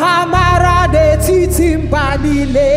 ha mara n'etiti mba niile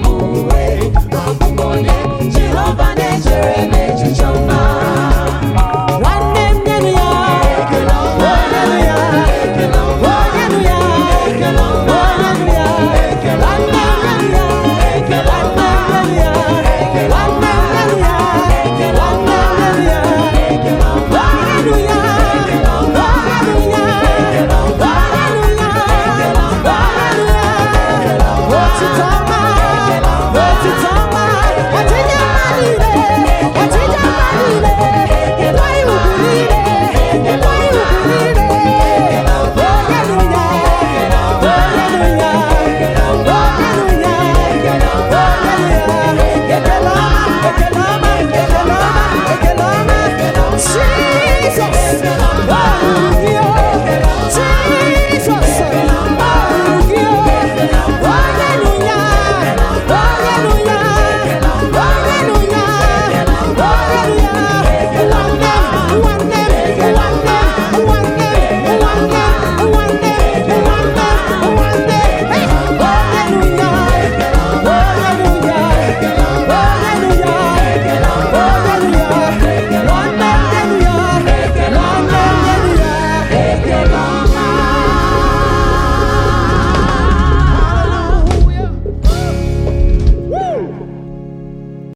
Always.